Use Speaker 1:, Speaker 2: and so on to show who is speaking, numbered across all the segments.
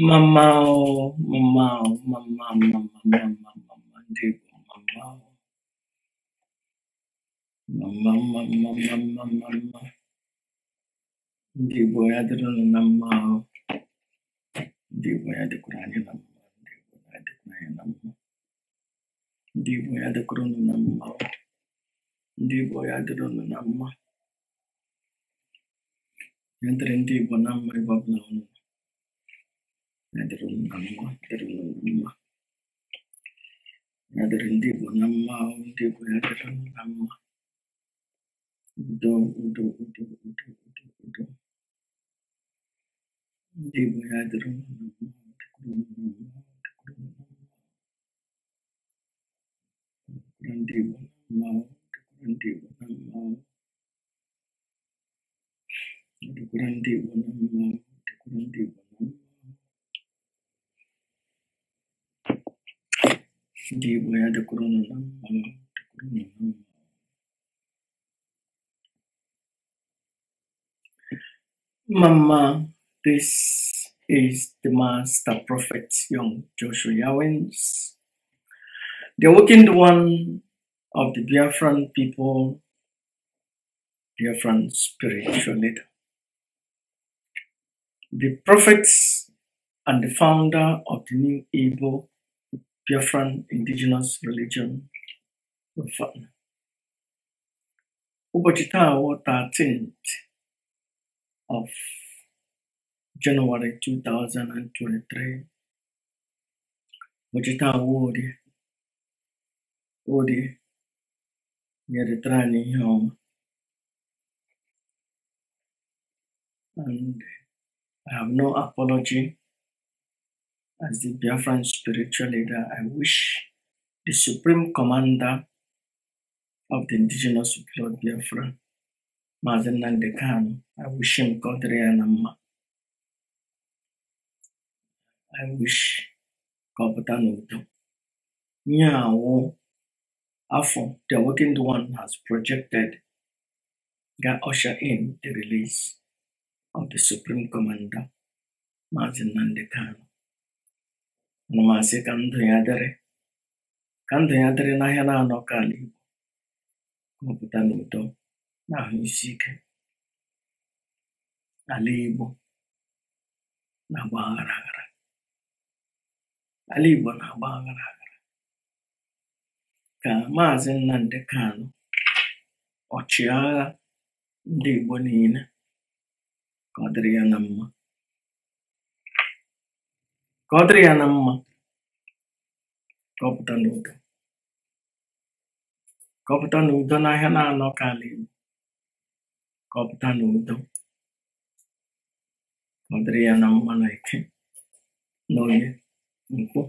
Speaker 1: Mamau, mamau, mamau, mamau, mamau, mamau, mamau. Mamau, mamau, mamau, mamau. mamau, mamau, mamau, mamau, mamau, mamau, mamau, mamau, mamau, mamau, mamau, mamau, mamau, mamau, mamau, Yang mamau, bonam meribab launu ngadirin nama ngadirin nama ngadirin di bu nama di bu ngadirin nama udo udo udo udo udo udo di bu ngadirin nama di bu nama di bu nama di bu nama di bu nama di bu nama di bu nama di bu Hmm. mama, this is the Master Prophet Young Joshua Yawens, the awakened one of the Biafran people, Biafran spiritual leader. The prophet and the founder of the new Igbo Biafran indigenous religion Van. Ụbọchị taa wụ 13th of January 2023. Ụbọchị taa wụ orie. Orie nyeretara anyị ihe ọma. And I have no apology as the Biafran spiritual leader, I wish the Supreme Commander of the Indigenous people of Biafra, Mazen Nandekano, I wish him God Reanama. I wish Kabatanoto. Nyao Afo, the awakened one, has projected that usher in the release of the Supreme Commander, Mazen Nandekano. Ana m asị ka ndụ ya dịrị ka ndụ ya dịrị n'ahịa na-anọ ka ala Igbo mụpụta n'udo na-ahụ isi ike ala Igbo na-agba aghara ala Igbo na-agba aghara aghara ka Maazị nnamdị kanụ ọchịagha ndị Igbo niile ka ọ dịrị ya na mma ka ọ dịrị ya na mma ka ọ pụta n'udo ka ọ pụta n'udo n'ahịa na-anọ ka ala Igbo ka ọ pụta n'udo ka ọ dịrị ya na mma na ike na onye nkwụ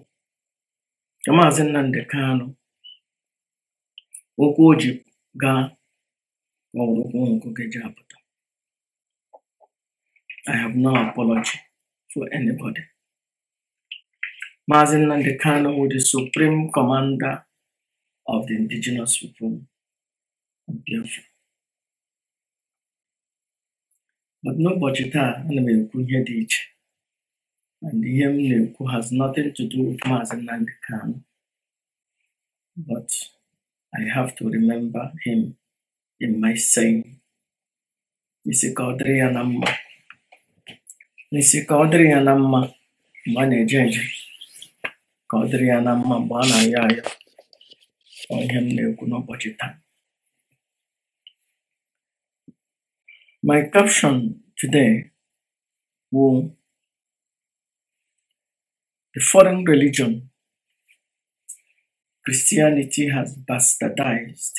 Speaker 1: ka maazị Nnamdi Kanu okwu o ji gaa ka ọ bụrụ okwu ji apụta I have no apology for anybody. Mazin Nandekano, who is the supreme commander of the indigenous people of Biafra. But n'ụbọchị taa ana m ekwu ihe dị and ihe m na has nothing to do with Mazin Nnamdi but I have to remember him in my saying isi ka ọ dịrị ya na my caption today will the foreign religion Christianity has bastardized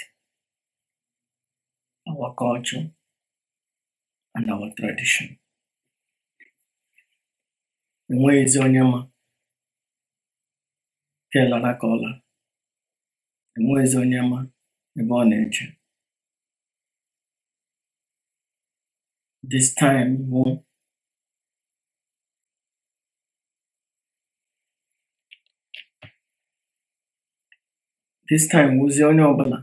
Speaker 1: our culture and our tradition. Enweghịzi onye Echeela ka ọ laa, enweghịzi onye ma ebe ọ na-eche. This time bụ this time wụzie onye ọbụla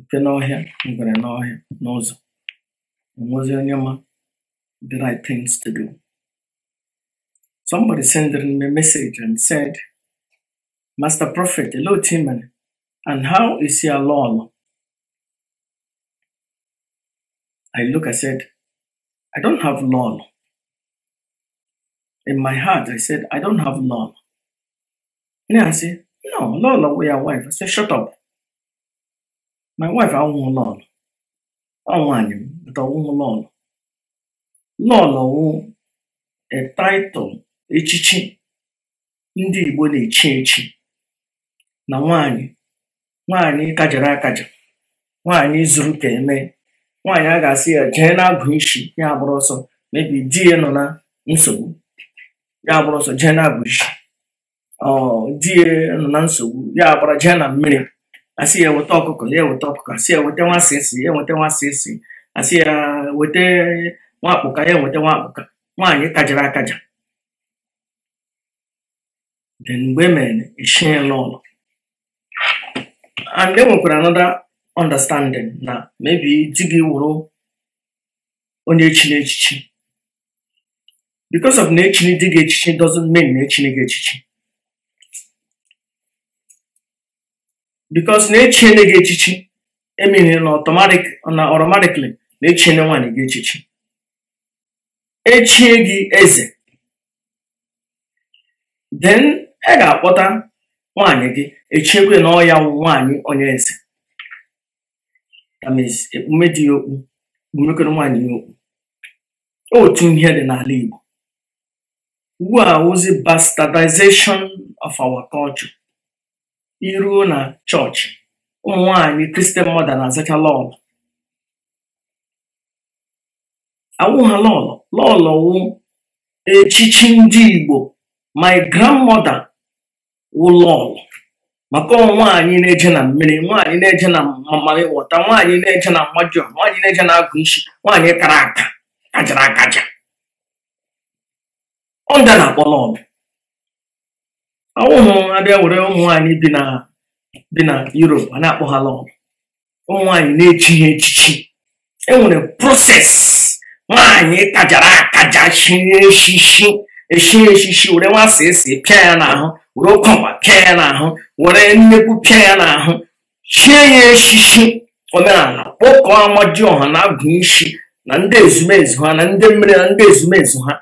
Speaker 1: nke n'ọhịa ngwere n'ọhịa n'ụzọ enwezi onye ma the right things to do. Somebody sent me a message and said Master Prophet, hello Timon, and how is your lol? I look, I said, I don't have lol. In my heart, I said, I don't have lol. And I said, no, lol with your wife. I said, shut up. My wife, I won't lol. I want him. but I won't lol. Lol, a title, a Ndị Igbo na-echi echi. na nwanyị, nwanyị kajara akaja nwaanyị zuru ka eme nwaanyị a ga-asị ya jee na-agụ isi ya agbụrụ ọsọ mebi di ya nọ na nsogbu ya agbụrụ ọsọ jee na-agụ isi di ya nọ na nsogbu ya agbara jee na mmiri asị ya weta ọkụkọ ya weta ọkụkọ asị ya weta nwa esi ya weta nwa esi asị ya weta nwakpụka ya weta nwakpụka nwaanyị kajara akaja mgbe e mere echie n'ụlọ and e nwekwara another understanding na maybe di gị wụrụ onye echiri echichi because of na echiri di gị echichi doesn't mean na echiri gị echichi because na echiene gị echichi emiri na automatic na automatically na echiene nwaanyị gị echichi echie gị eze then ị e ga-akpọta nwaanyị gị echiekwe na ọya nwaanyị onye eze ekpume dị ya okpu ekpumekọrọ nwaanyị ya okpu otu ihe dị n'ala Igbo ugbu a ozi bastardization of our culture iruo na chọọchị ụmụ nwanyị kristian mọda na-azacha lọlọ awụ ha lọlọ lọlọ wụ echichi ndị Igbo my grandmother wụ lọlọ maka nwaanyị na-eje na mmiri nwaanyị na-eje na mmammarị wọta nwaanyị na-eje na mmajụ nwaanyị na-eje na agụ isi nwaanyị kara aka kajara akaja ọnda na-akpọ lọbụ ọwụhụ abịa were ụmụ nwaanyị bi na bi na Europe a na-akpọ ha lọbụ ụmụ nwaanyị na-echi ha echichi nwere proses nwaanyị kajara akaja shie echichi echi echichi were nwa esi pịa ya n'ahụ were ụkwakwa pịa ya n'ahụ were nnekwu pịa ya n'ahụ chie ya echichi omenala kpọkọọ ọha na agụ isi na ndị ezumezu ha na ndị mmiri na ndị ezumezu ha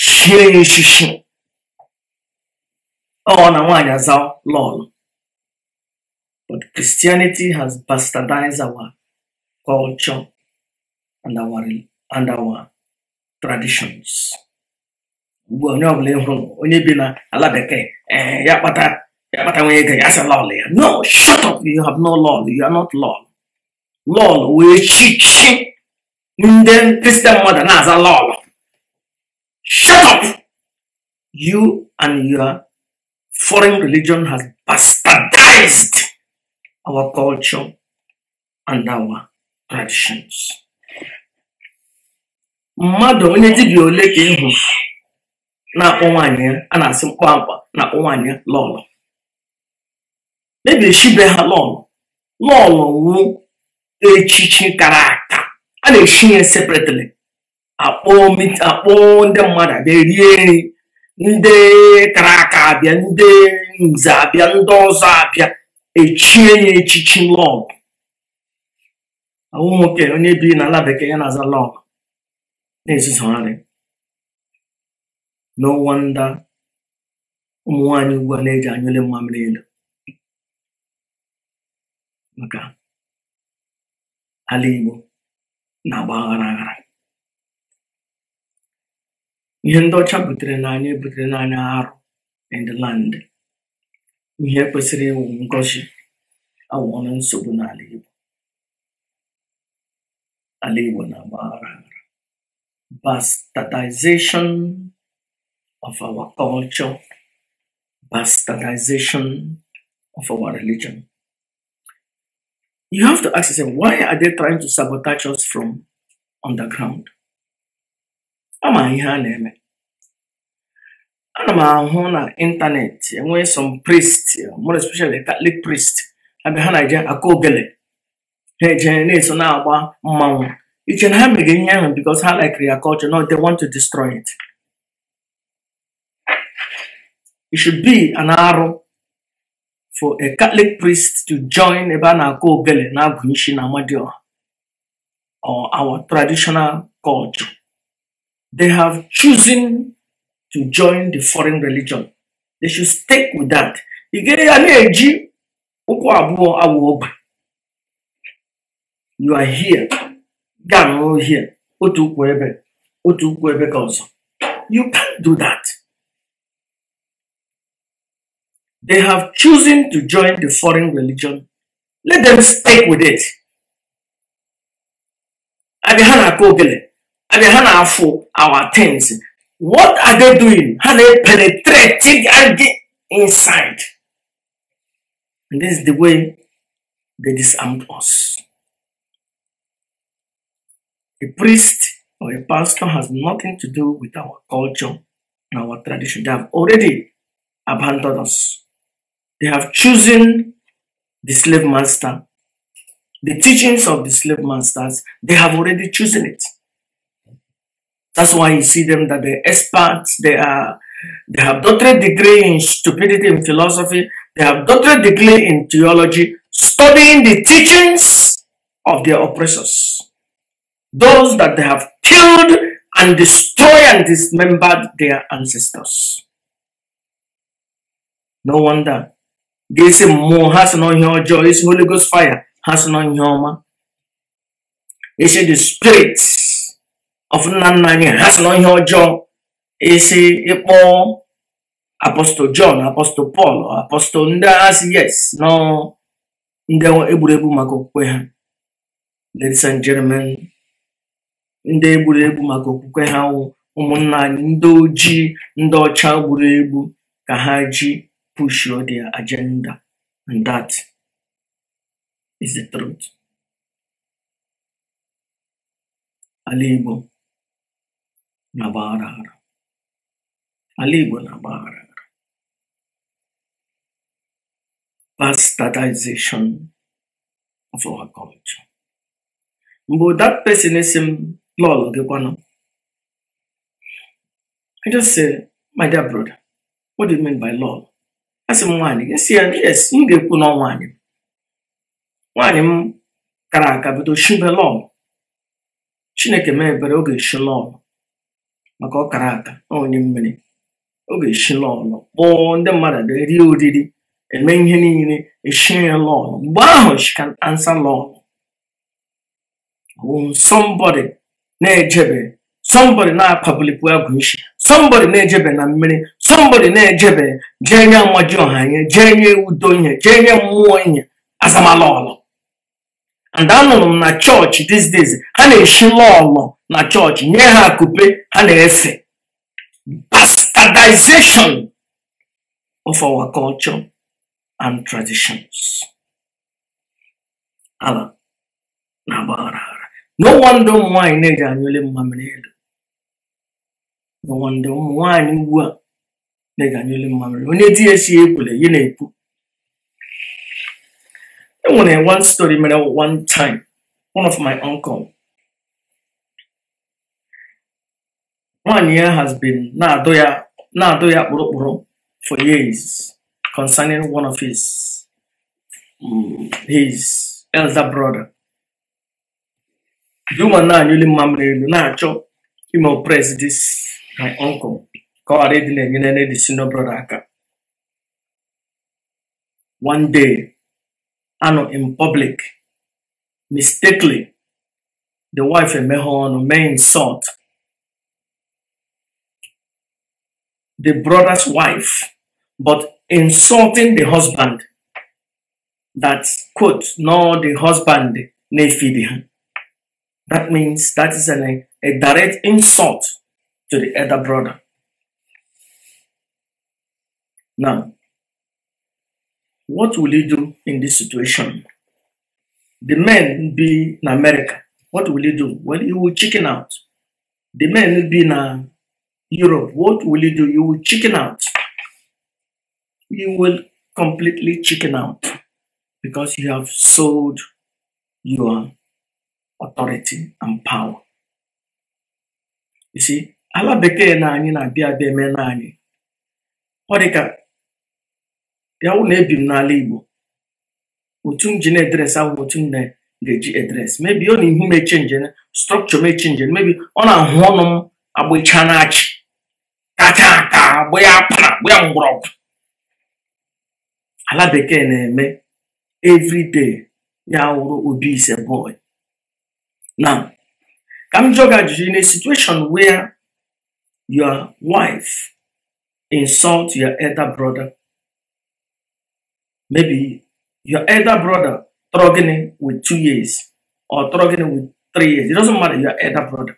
Speaker 1: chie ya echichi ọ na nwaanyị aza lọlụ but Christianity has bastardized our culture and our, and our traditions. ugbu onye ọbụla bụla hụrụ onye bi na ala bekee eh, ya kpata ya kpata nwunye ego ya asị lọl ya no shut up you have no lọl, you are not lọl. Lọl wee chichi ndị kristian mmadụ na-aza lọl. shut up you and your foreign religion has bastardized our culture and our traditions mmadụ onye dibịa ole ka ị hụrụ na-akpọ nwaanyị ya a na-asị mkpamkpa na-akpọ nwaanyị ya lọlọ mebiri shibe ha lọlọ lọlọ wu echichi kara aka a na-eshi ya separately akpọ ndị mmadụ abịa rie nri ndị kara aka abịa ndị nze abịa ndị ọzọ abịa echie ya echichi lọlọ ahụ nwoke onye biri n'ala bekee ya na-aza lọlọ na-ezuzogharị No wonder ụmụ nwanyị ugbu a na-eji anyụle mmamịrị elu maka ala Igbo na-agba aghara aghara ihe ndị ọcha butere n'anya butere n'anya arụ and ihe kwesịrị ịwụ ngọzi awụọla nsogbu n'ala Igbo ala Igbo na-agba aghara aghara of our culture, bastardization of our religion. You have to ask yourself, why are they trying to sabotage us from underground? Am I here, na-eme ana m ahụ na ịntanetị enwee some priest more especially catholic priest I ha na-eje aka ogele ha eje na-eso na-agba mmanwụ iche na ha mege because I like ya culture no they want to destroy it It should be an arrow for a Catholic priest to join Ebanako Gele Nagunshin or our traditional culture. They have chosen to join the foreign religion. They should stick with that. You are here. Gano here. Otu Otu You can't do that. they have chosen to join the foreign religion, let them stick with it. our things. What are they doing? How they penetrating and get inside. And this is the way they disarmed us. A priest or a pastor has nothing to do with our culture and our tradition. They have already abandoned us. They have chosen the slave master. The teachings of the slave masters, they have already chosen it. That's why you see them that they're experts, they are they have doctorate degree in stupidity in philosophy, they have doctorate degree in theology, studying the teachings of their oppressors. Those that they have killed and destroyed and dismembered their ancestors. No wonder ga-esi mmụọ ha si n'ihe ọjọọ esi n'oligos Ghost ha si n'ihe ọma esi the spirit of nna nna anyị ha si n'ihe ọjọọ esi ịkpọ apostol John apostol Paul apostol ndị agha yes nọ ndị e egwuregwu maka okwukwe ha ladies and gentlemen ndị e egwuregwu maka okwukwe ha ụmụnna anyị ndị ojii ndị ọcha egbu ka ha ji push your their agenda. And that is the truth. Alibo Navarara. Alibo Navarara. Bastardization of our culture. But that pessimism, lol, I just say, my dear brother, what do you mean by law? asị m nwaanyị esi si ya yes m ga-ekwu na nwaanyị nwaanyị m kara aka bido shibe lọm chineke mee ebere oge eshi lọm maka ọ kara aka onye mmiri oge eshi lọm kpọọ ndị mmadụ e rie oriri eme ihe niile eshi ya lọm mgbe ahụ she ansa answer lọm somebody na-ejebe somebody na-akpabilipụ agwụ ishi somebody na-ejebe na mmiri somebody na-ejebe jee nye mmaji ọha ihe jee nye udo ihe jee nye mmụọ ihe azamala ọlọ and anụrụ m na chọọchị these days ha na-eshi lọọlọ na chọọchị nye ha akupe ha na-efe bastardization of our culture and traditions ala na agbaghara no wonder ụmụ nwaanyị na-eji anyụle mmamịrị elu no wonder ụmụ nwaanyị ugbu a na-eganyelu mmamịrị onye di ya si ekwule ya na-ekwu enwere one story mere one time one of my uncle nwaanyị ya has been na-adụ ya kpụrụkpụrụ for years concerning one of his his elder brother the woman na-anyụli mmamịrị elu na-achọ ịmụ oppress this my uncle ka ɔde de n'anyina no de si one day ano in public mistakenly the wife ɛmɛ hɔ main mɛ insult the brother's wife but insulting the husband that quote no the husband na feed him that means that is an, a direct insult to the other brother now, what will you do in this situation? The men be in America. What will you do? Well, you will chicken out. The men be in uh, Europe. What will you do? You will chicken out. You will completely chicken out because you have sold your authority and power. You see, Allah beke na ani na biya abịa eme na anyị. bịa wụ na ebi m n'ala Igbo otu m ji na edres ahụ otu m ga eji edres mebi ọ na ihu m echenje strọkchọ m echenje mebi ọ na-ahụ ọnụ m agbịcha na-achị kacha aka agba ya akpara agba ya mgbọrọgwụ ala bekee na-eme evriday ya wụrụ obi ise boy Na ka m jụọ gị ajụjụ in a situation where your wife insult your elder brother Maybe your elder brother struggling with two years or struggling with three years. It doesn't matter, your elder brother.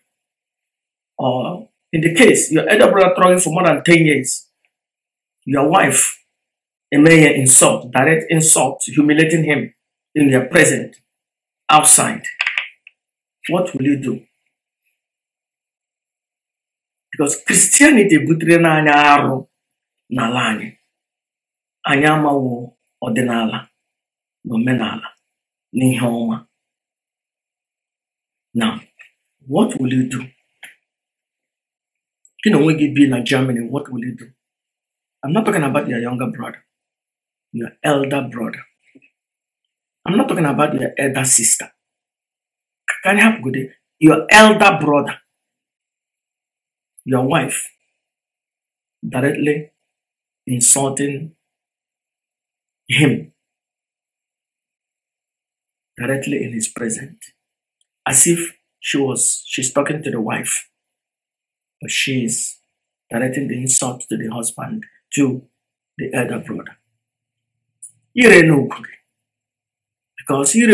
Speaker 1: Or in the case, your elder brother struggling for more than 10 years. Your wife a mere insult, direct insult, humiliating him in your present, outside. What will you do? Because Christianity butere na anya arụ n'ala ọdịnala na omenala na ihe ọma na what will you do gị na onwe gị bi na germany what will you do i'm not talking about your younger brother your elder brother i'm not talking about your elder sister help anyị hapụgode your elder brother your wife directly insulting him directly in His presence, as if she was she's talking to the wife, but she's directing the insult to the husband, to the elder brother. because you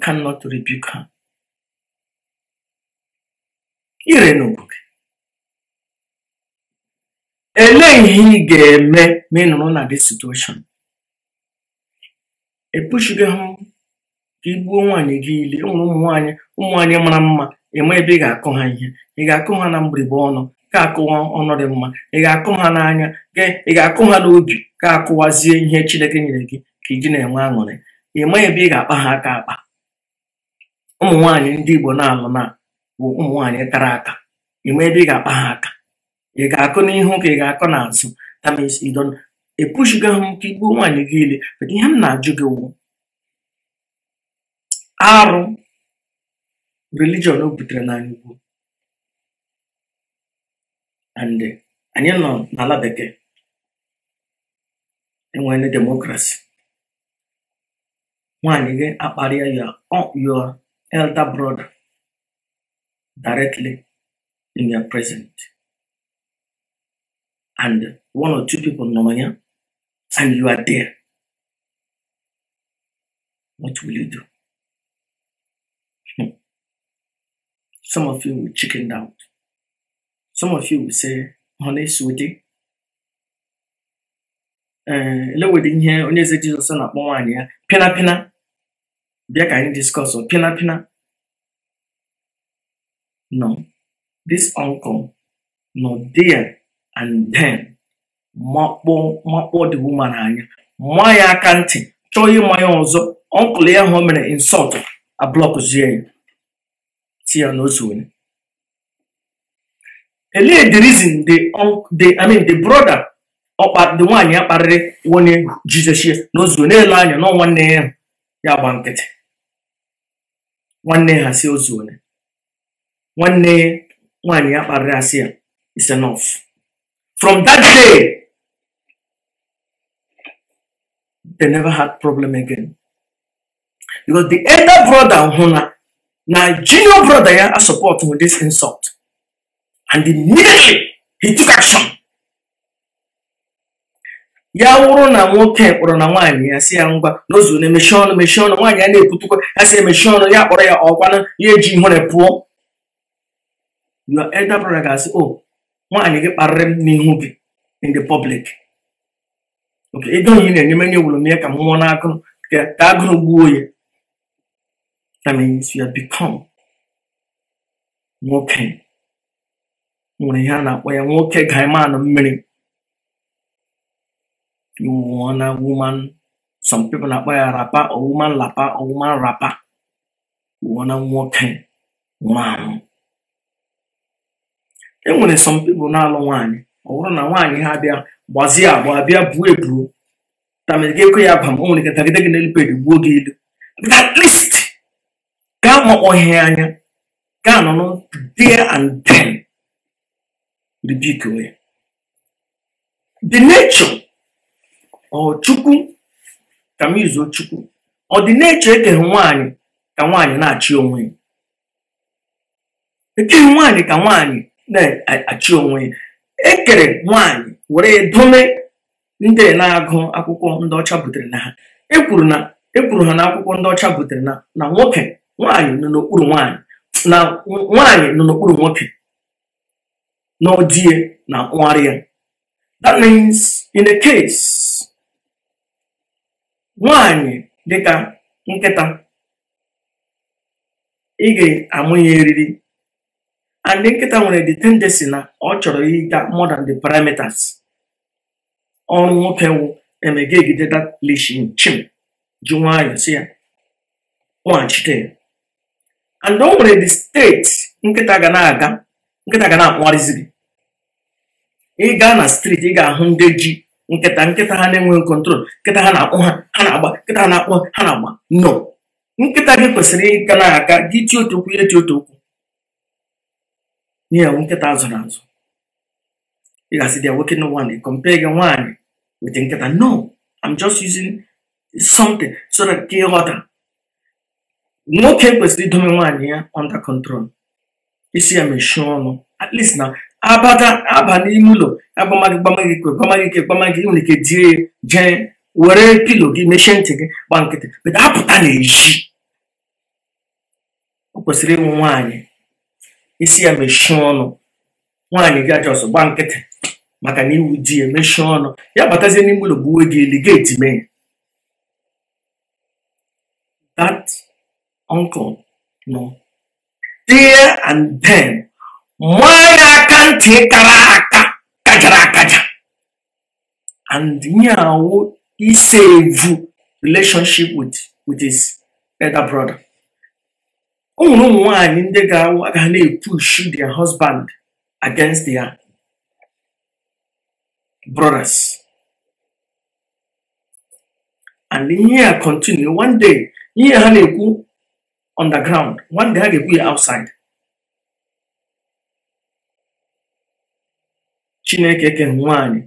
Speaker 1: cannot rebuke her. Elee ihe ị ga-eme ma ị nọrọ na this situation? Epushigo ha ka ị gbuo nwaanyị gị ile e nwere ụmụ nwaanyị ụmụ nwaanyị mara mma ịma ebe ị ga-akụ ha ihe ị ga-akụ ha na mgbirigbe ọnụ ka akụwa ọnụ dị mma ị ga-akụ ha n'anya ị ga-akụ ha n'obi ka akụwazie ihe Chineke nyere gị ka iji na-enwe aṅụrị ịma ebe ị ga-akpa ha aka akpa ụmụ ndị Igbo na-alụ na bụ ụmụ nwaanyị tara aka ịma ebe ị ga-akpa ha aka ị ga-akọ n'ihu ka ị ga-akọ n'azụ tamis idon epushigo ha nke igbuo nwaanyị gị ile but ihe m na-ajụ gị wụ arụ religion o butere na ugwu and anyị nọ n'ala bekee enwere demokrasi Nwanyị gị akparịa ya your elder brother directly in your present and one or two people Nomanya, and you are there, what will you do? Hmm. Some of you will chicken out. Some of you will say, honey, sweetie, ele eh, wede ihe onye eze jizọs na-akpọ nwaanyị ya pịnapịna bịa ka anyị diskọs oh, pịnapịna no this uncle no there and then makpọ makpọ the woman anya ma ya aka ntị chọọ ịma ya ọzọ ọnkụl ya hụ mere insult ablọkzie ya si ya n'otu onye elee the reason the the I mean the brother ọkpa the nwanyị akparịrị kparịrị onye jizọs ya n'ozu n'elu anya nọ nwanne ya ya gba nkịtị nwanne ha si ozu onye nwanne nwanyị akparịrị kparịrị asị ya is enough From that day, they never had problem again. Because the elder brother Huna, now junior brother yeah, are supporting with this insult. And immediately he took action. ya wụrụ na nwoke kpọrọ na nwaanyị ya si ya ngwa n'ozu na emechi ọnụ mechi ọnụ nwaanyị ya na-ekwutukwa ya si emechi ọnụ ya kpọrọ ya ọkwanụ ya eji ihere pụọ na elder ga-asị o oh, nwaanyị gị kparịrị m n'ihu gị in the public oke ego onye na enye menye wuru m ya ka m nwụọ n'agụ ka agụrụ gbuo ya that means you have become nwoke nwere ihe a na-akpọ ya nwoke gaimanụ mmiri you woman some people na-akpọ ya rapa or woman lapa or rapa you want nwoke nwụrụ anwụ e nwere some people na-alụ nwaanyị ọ bụrụ na nwaanyị ha bịa gbazie agba abịa buo ebuo tamegekwe ya ba o nwere ike tagide gị n'elu peji gbuo gị ilu at least gaa makpọghị anya gaa anọ nọ dia and then ribiko ya the nature ọ chukwu ka m izuo chukwu ọ dị n'echu ekeghị nwaanyị ka nwaanyị na-achị onwe ya ekeghị nwaanyị ka nwaanyị na-achị onwe ya ekere nwanyị were dome ndị na-agụ akwụkwọ ndị ọcha butere na ha ekwuru na ekwuru ha na akwụkwọ ndị ọcha butere na na nwoke nwaanyị nọ n'okpuru nwaanyị na nwaanyị nọ n'okpuru nwoke n'odie na nwarị ya that means in a case nwaanyị dịka nkịta ị ga-amụ eriri and nkịta nwere the tendency na ọ chọrọ ịga more than the parameters ọrụ nwoke wụ emege egide that leashin chim ji nwayọọ si ya nwaghachite oh, and eh. o nwere the state nkịta ga na-aga nkịta ga na-akpụgharịzi gị ị gaa na streeti ị ga-ahụ ndị ji nkịta nkịta ha na-enweghị kontrol nkịta ha na-akpụ ha ha na-agba nkịta ha na-akpụ ha na-agba no nkịta gị kwesịrị ịga na-aga gị ti otu okwu ihe ti otu okwu n'ihi na nkịta zụrụ azụ ị ga-asị dị nwoke na nwaanyị compare gị nwaanyị wete nkịta no am just using something so that ka ịghọta nwoke kwesịrị idomi nwaanyị ya under control isi ya mechie ọnụ at least na abata aba n'ime ụlọ agbamaghị gbamaghị ikwe gbamaghị ike gbamaghị ike nwere ike die jee were pilo gị mechie ntị gị gba nkịtị bụta apụta n'ezi o kwesịrị ịnwụ nwaanyị isi ya mechie ọnụ nwaanyị gị ajọ ọsọ gba nkịtị maka na iwu di ya mechie ọnụ ya batazie n'ime ụlọ gbuwe gị eli geeti mee that uncle no. there and then nwaanyị aka ntị kara aka kajara akaja and nyawo isevu relationship with with his elder brother o ụmụ nwaanyị ndị ga-aga na shi their husband against their brothers and ihe a continue one day ihe ha na-ekwu underground one day ha ga-ekwu ya outside chineke ke nwaanyị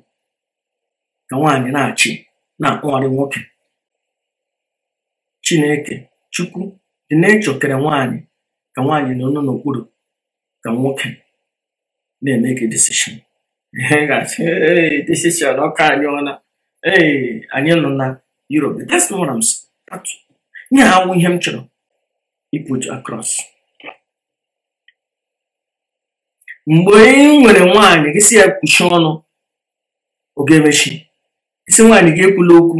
Speaker 1: ka nwaanyị na-achị na-akpọgharị nwoke chineke chukwu Chineke kere nwaanyị ka nwaanyị nọ n'okpuru ka nwoke na eme decision ihe ga decision ọka anyị ọna ee anyị nọ na Europe that's not nye ha awụ ihe m chọrọ iput across mgbe ị nwere nwaanyị gị si ya kwuchi ọnụ oge emechi isi nwaanyị gị ekwula okwu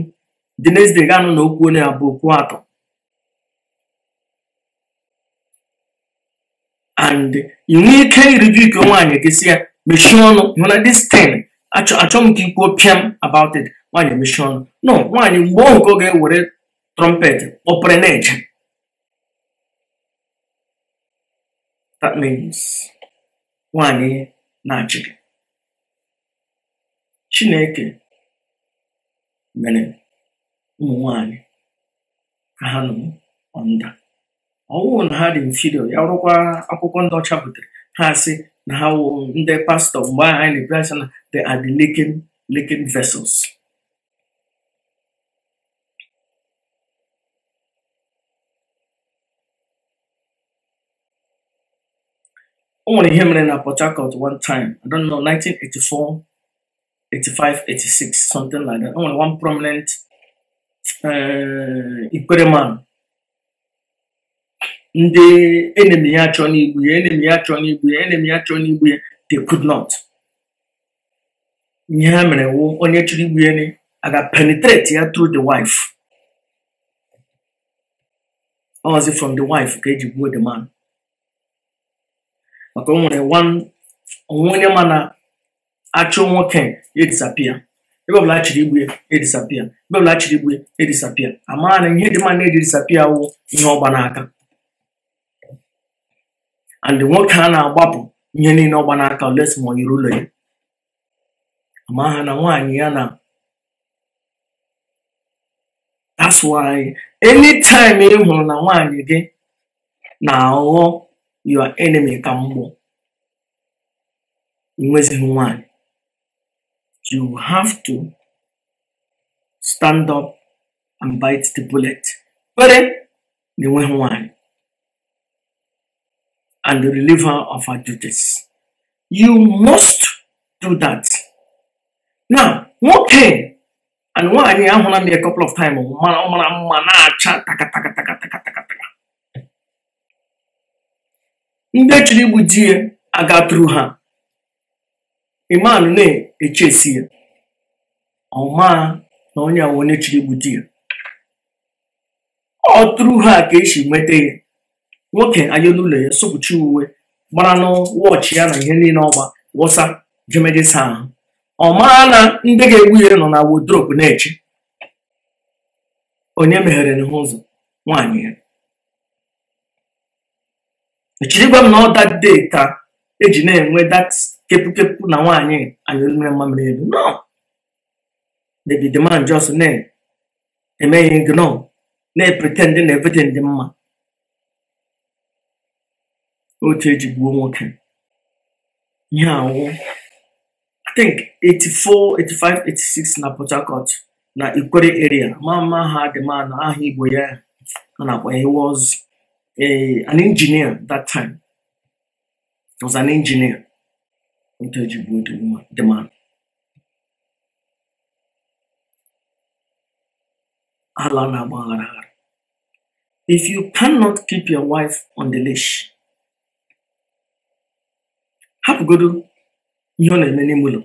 Speaker 1: dị next day ga-anụ na okwu onye abụ okwu atọ and ị nwee ike iriju ike nwaanyị gị si ya mechie ọnụ na dis achọ m ka ikwuo pịam about it nwanyị mechie ọnụ no nwaanyị mgbe ọ nke ọ ga-ewere trumpet ọpere na that means nwaanyị eh, na-achị chineke mere ụmụ nwanyị ka ha nọ ọnda ọwụụ na ha dị mfido ya rụkwa akwụkwọ ndị ọcha butere ha sị na ha wụ ndị pastọ mgbe ahụ anyị na-ebi asị na the are the leaking leaking vessels o nwere ihe mere na Port Harcourt one time I don't know 1984 85 86 something like that o nwere one prominent uh, Ikwere man ndị enemi ya achọ n'igbu ya enemi ya achọ n'igbu ya enemi ya achọ n'igbu ya the good not ihe ha mere wụ onye chọrọ igbu ya aga penetrate ya through the wife ozi from the wife ka eji gbuo the man maka o nwere onwe onye ma na achụ nwoke ya e disappear ebe ọbụla chiri igbu ya edisapịa ebe ọbụla chiri igbu ya edisapịa amaghana ihe dị mma na-eji disapịa wụ ihe ọgba n'aka and nwoke a na-agbapụ ihe niile ọgba n'aka olesi ma ụlọ ya ma ha na nwaanyị ya na asụ anyị anytime ị hụrụ na nwaanyị gị na-aghọ your enemy ka mgbọ nwezighị nwaanyị you have to stand up and bite the bullet na enweghị nwaanyị and relieve her of our duties. You must do that. Now, nwoke and nwanyị ahụla m a couple of times mara mara oh, mma oh, na-acha ah, takatakatakatakatakataka ndị chiri igbu di ya agatụrụ ha iman na-echesi ya ọma na onye ahụ onye chiri igbu ọ tụrụ ha ka esi nweta ya nwoke anya n'ụlọ ya sokwuchi uwe gbara n'wọchị ya na ihe niile ọgba wọsa jemedisa ahụ ọ mara na ndị ga-egbu ihe nọ na wodrobu na-eche onye meghere n'ihu ụzọ nwaanyị ya echirigwa m na ọ dade ka eji na-enwe dat kepụkepụ na nwaanyị anyụmere mmamịrị elu no the demand na-eme ihe ignore na-pretend na everything dị mma otu eji gbuo nwoke ihe anwụ i think 84 85 86 na Port Harcourt na Ikwere area mama ha dị na aha Igbo ya a na-akpọ he was an engineer that time he was an engineer otu eji gbuo dị man ala na-agba aghara aghara if you cannot keep your wife on the leash hapụgodu ihe ọ na-eme n'ime ụlọ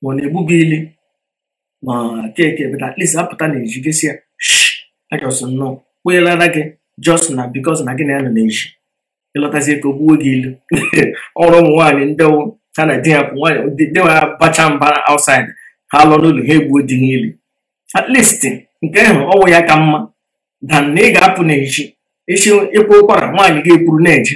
Speaker 1: ma ọ na-egbu gị ili ma keke bụta atleast apụta na eji gesi ya ajọsụ nnọọ kpụnyelara gị just na because na gị na ya nọ na-eji ịlọtazie ka o gbuo gị ilu ọrụ ụmụ nwaanyị ndị ha na di ya bụ nwaanyị nwa ha bacha mba outside ha lụọ n'ụlọ ha egbuo dị ha ili atleast nke ahụ ọnwụ ya ka mma dan na ị ga-apụ na eji echi ịkwụ ụkwara nwaanyị ga-ekwuru na-eji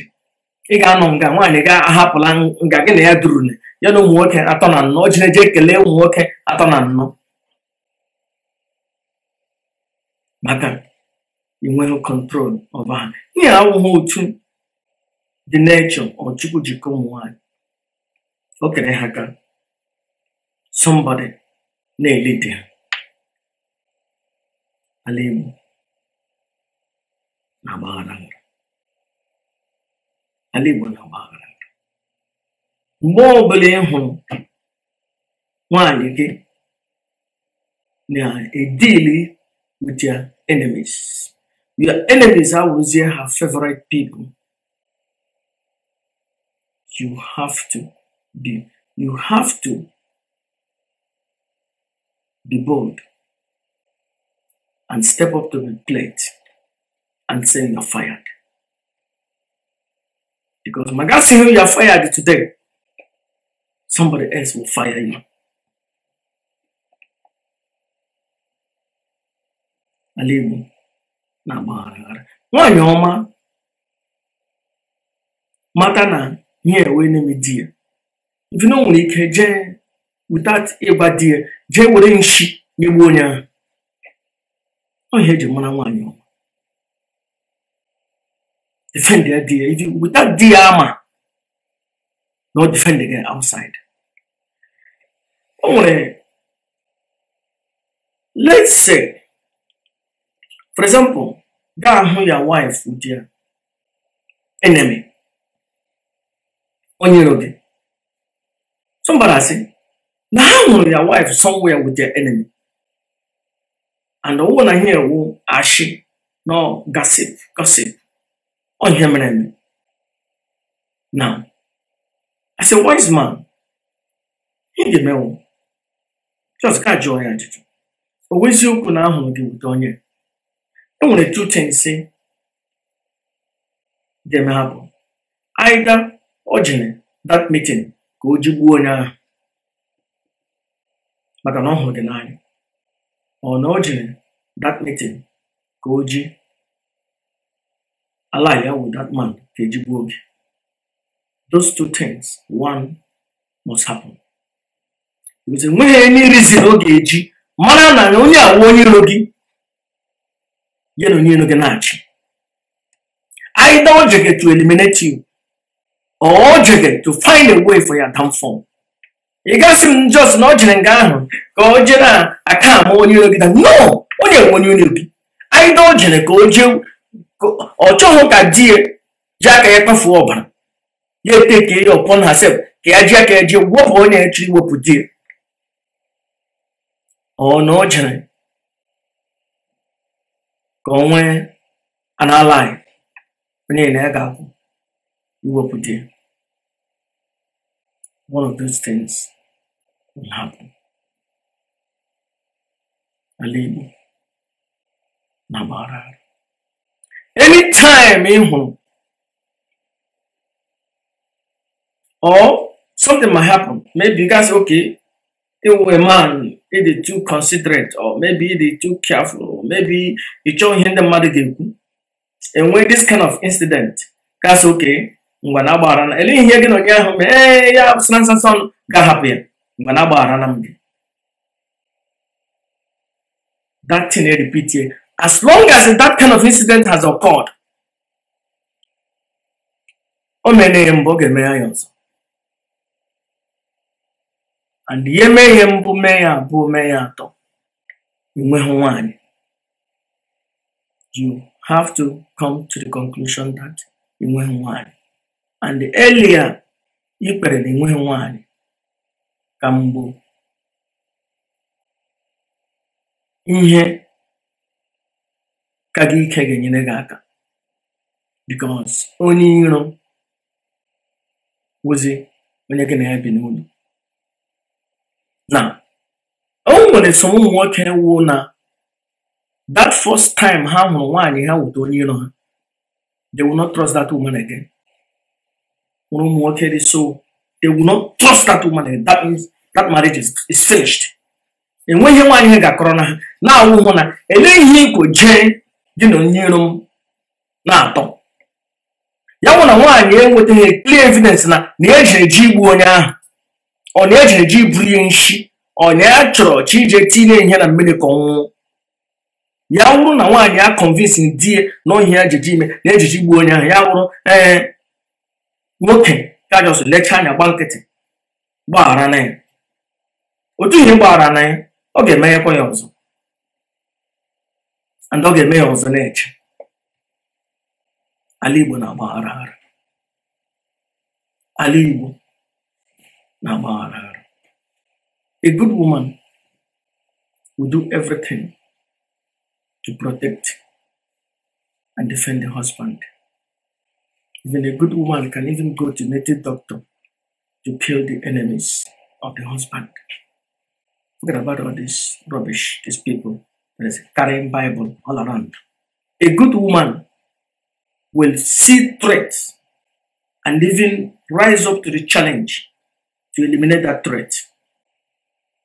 Speaker 1: ị ga-anọ nga nwaanyị ga-ahapụla nga gị na ya duru ya na ụmụ nwoke atọ na nnọ o jee kelee ụmụ nwoke atọ na nnọ maka inweghị kọntrol ọba ha ihe awụghị otu dị nechọ ọchukwu jikọ ụmụ nwaanyị o kere ha ka somebody na-elidi ha ala Igbo na-agbaghara ala Igbo na-agba aghara mgbe ọbụla ị hụrụ nwaanyị gị na-edili with their enemies your enemies awụzie your favorite people you have to be you have to be bold and step up to the plate and say you're fired because Magasimu, you are fired today. Somebody else will fire you. Alibu na agbaghara nwaanyị ọma mata na ihe enwe n'ime di ya mfina nwere ike jee without ịgba di ya jee you nshi nyegbuo onye ahụ ọ ihe eji want you. defend their DA. If you, with armor, not defend again outside. Only, let's say, for example, that who your wife with your enemy on your road. Somebody say, now your wife somewhere with your enemy. And the woman here will ashi, no gossip, gossip. Ọ ihe mere as a wise man, ị ga-emenwu. Just ka jụọ ya ajụjụ. O wee na ahụrụ gị wute onye. E nwere two things ga-eme ha bụ. Either o jere that meeting ka o jigbuo onye ahụ maka na ọ hụrụ gị n'anya. Ọ na o jere that meeting ka o ji with that man, Those two things, one must happen. Because when any reason oge eji, mara na onye awu onye logi, you know na onye iro gị na-achị. Either ojege to eliminate you, or ojege to find a way for your downfall. You gasị m just not ọ jere nga ahụ I can't jere you. ama onye no, onye nwe onye you. gị. Either o go ka ọ chọghị ka di ya ji aka ya kpafuo ọbara ya eteke ya ha sef, ka ya ji aka ya ji wepụ onye ya chọrọ iwepụ di ya ọ na ọ jere ka ọ ala anyị onye na ya ga-akwụ iwepụ di ya one of those things will happen ala Igbo na gbara anytime eh, home, or something might happen maybe you guys say okay ewu a man e dey too considerate or maybe e dey too careful or maybe e chọọ ihe ndị mmadụ And when this kind of incident that's okay ngwa na agbaghara na ele ihe gị na onye ahụ mee ya sịna nsansan ga-ahapụ ya ngwa na na m that thing eh, repeat eh. As long as that kind of incident has occurred, o mere ihe mbụ ọ ga-eme ya ọzọ and ihe mee ihe mbụ mee ya abụọ mee ya atọ inweghị nwanyị you have to come to the conclusion that inweghị nwanyị and the earlier ị kpere na inweghị nwanyị ka mgbu ihe ka gị ike ga-enyere gị aka bikos onye iro wụzi onye gị na ya bi n'ụlọ na o nwere so ụmụ nwoke wuo na that first time ha hụrụ nwaanyị ha wụta onye iro ha they will not trust that woman again hụrụ ụmụ nwoke dị so they will not trust that woman again that means that marriage is, finished enweghị nwaanyị ga-akọrọ na ha na-awụ hụ na ele ihe ikwo jee gị na onye iro m na-atọ ya nwụ na nwaanyị enwetaghị clear evidence na na eji eji igbu onye ahụ ọ na eji eji buru ihe nshi ọ na ya e chọrọ chi ije tinye ihe na mmiri ka ọnwụnwụ ya wụrụ na nwaanyị ya convince di ya na ohi ya ejiji ime na ejiji igbu onye ahụ ya wụrụ ee eh, nwoke ka jos lecha anya gba nkịtị gbaghara na ya otu ihe gbaghara na ya ọ ga-emeghekwa ya ọzọ and ọ ga-eme ya ọzọ na-eche na-agbaghara ara na-agbaghara a good woman will do everything to protect and defend the husband even a good woman can even go to native doctor to kill the enemies of the husband forget about all this rubbish these people there's a carrying Bible all around. A good woman will see threats and even rise up to the challenge to eliminate that threat.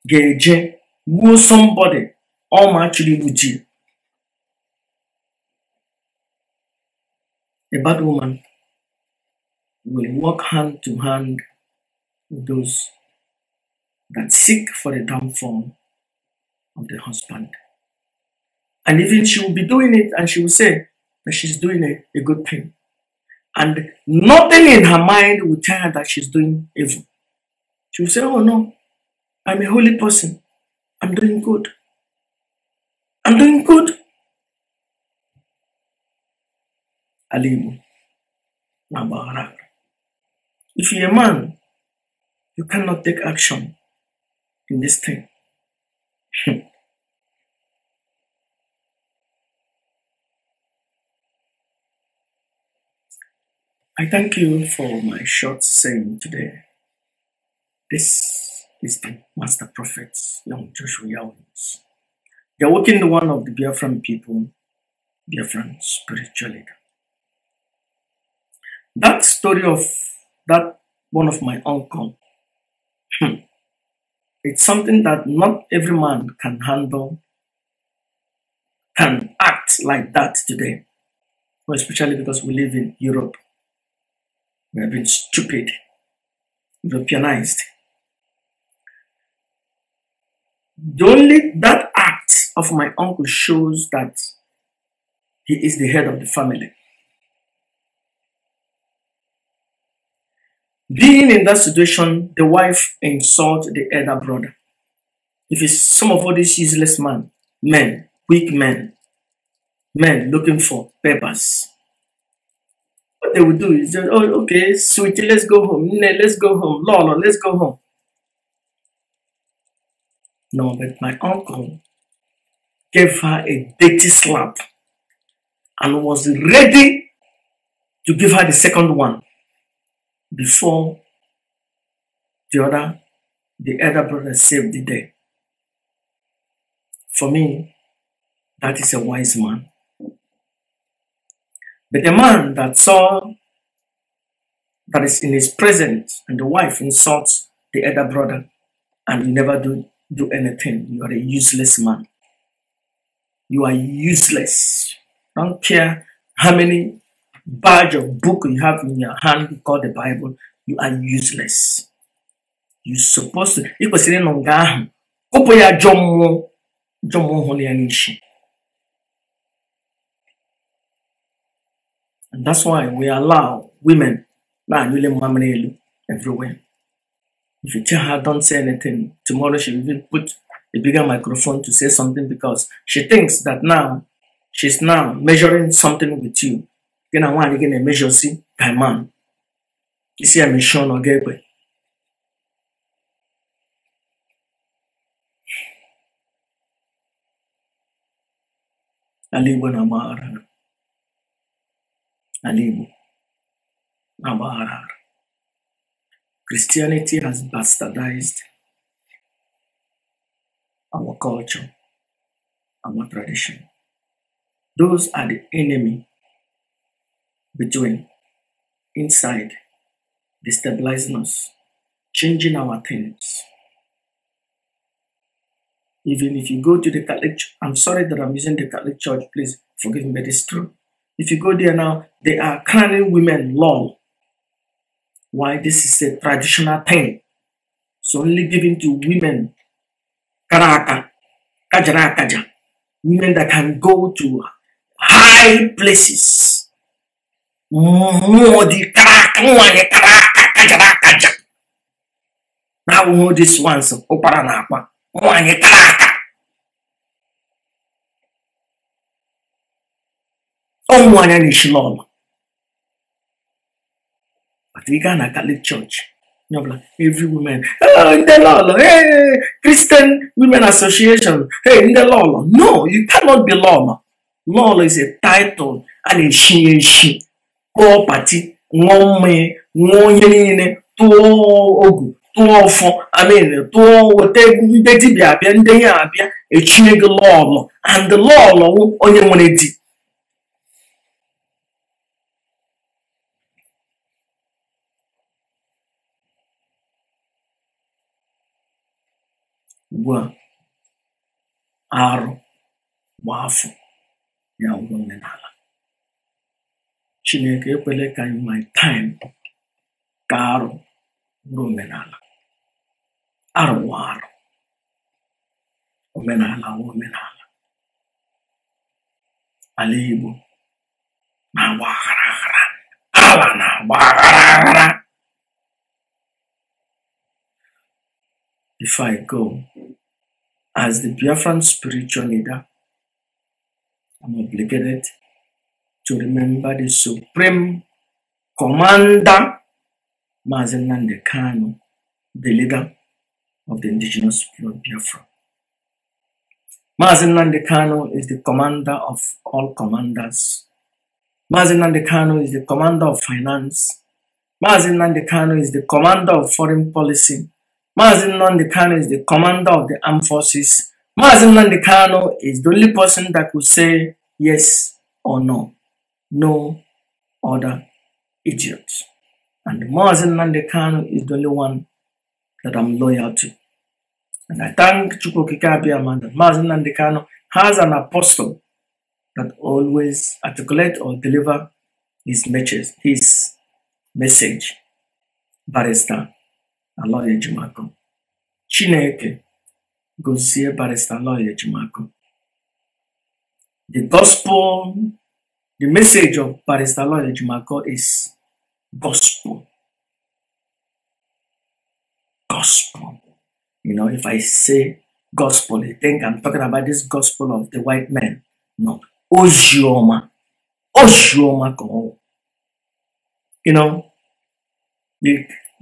Speaker 1: Geje, go somebody, or actually with you. A bad woman will walk hand to hand with those that seek for the downfall of the husband. And even she will be doing it and she will say that she's doing a, a good thing. And nothing in her mind will tell her that she's doing evil. She will say, Oh no, I'm a holy person. I'm doing good. I'm doing good. Alimu. Nabarak. If you're a man, you cannot take action in this thing. I thank you for my short saying today. This is the Master Prophet, young Joshua Owens, the awakened one of the Biafran people, Biafran spiritual leader. That story of that one of my uncle, hmm, it's something that not every man can handle, can act like that today, especially because we live in Europe we have been stupid, Europeanized. The only that act of my uncle shows that he is the head of the family. Being in that situation, the wife insults the elder brother. If it's some of all these useless men, men, weak men, men looking for papers, what they would do is just, oh, okay, sweetie let's go home. Nne, let's go home. Lolo, let's go home. No, but my uncle gave her a dirty slap and was ready to give her the second one before the other, the elder brother saved the day. For me, that is a wise man. But the man that saw that is in his presence and the wife insults the elder brother and you never do, do anything, you are a useless man. You are useless. Don't care how many badge of book you have in your hand called the Bible, you are useless. You're supposed to. Ị kwesịrị ịnọ And that's why we allow women everywhere. If you tell her don't say anything, tomorrow she will put a bigger microphone to say something because she thinks that now she's now measuring something with you. Then I want to measure see by man. You see, I'm a Sean Ogegwe. Aliwa na maara. Alimu, Baba Christianity has bastardized our culture, our tradition. Those are the enemy between, inside, destabilizing us, changing our things. Even if you go to the Catholic, I'm sorry that I'm using the Catholic Church, please forgive me, but it's true. If you go there now, they are carrying women long. Why? This is a traditional thing. So only given to women, karaka, kajara kaja, women that can go to high places. Now this all these karaka. onwa is rishlon but ị gaa a Catholic Church No, every woman Oh, in the ndị hey, Christian Women Association hey in the lọlọ no you cannot be lọlọ lọlọ is a title a na-eshi eshi kpọọ pati ṅụọ mmanya ṅụọ ogu tụọ ọfọ amen tụọ weta egwu ndị dibịa abịa ndị ya abịa echie gị lọlọ and lọlọ onye nwere di aro bụ afọ ya ụgwọ omenala chineke ekwele ka my time ka arụ bụrụ omenala arụ bụ arụ omenala bụ omenala ala igbo na-agba aghara aghara ala na-agba aghara aghara if i go as the Biafran spiritual leader, I'm obligated to remember the supreme commander, Mazen Nandekano, the leader of the indigenous people of Biafra. Mazen Nandekano is the commander of all commanders. Mazen Nandekano is the commander of finance. Mazen Nandekano is the commander of foreign policy. Mazi Nnamdi Kano is the commander of the armed forces. Mazi Nnamdi Kano is the only person that could say yes or no. No other idiot. And Mazi Nnamdi Kano is the only one that I'm loyal to. And I thank Chukwokika Abiyama that Kano has an apostle that always articulate or deliver his message, his message, barrister lọya Jimakụ. Chineke barista loja de Jimakụ. The gospel, the message of loja de Jimakụ is gospel. Gospel. You know, if I say gospel, you think I'm talking about this gospel of the white man. No. Ozioma. Ozioma You know,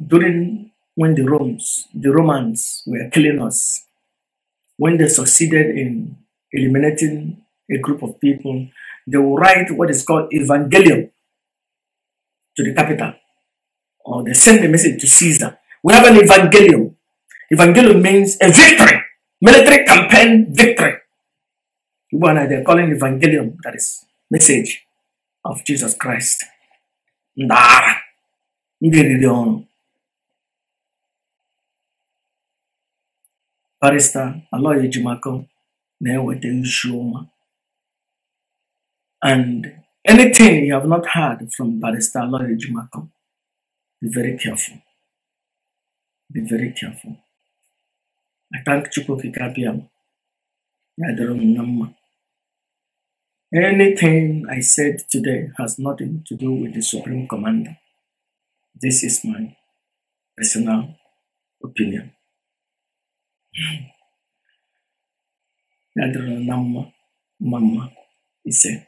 Speaker 1: during when the Romans, the Romans were killing us, when they succeeded in eliminating a group of people, they will write what is called evangelium to the capital. Or they send a message to Caesar. We have an evangelium. Evangelium means a victory, military campaign victory. One they're calling evangelium, that is message of Jesus Christ. Nah, Barista Aloy Ejimako na-eweta and anything you have not heard from Barista Aloy Ejimako be very careful be very careful I thank Chukwukike Abiam ya dịrị Anything I said today has nothing to do with the Supreme Commander. This is my personal opinion. Dentro de la mamá, mamá, dice.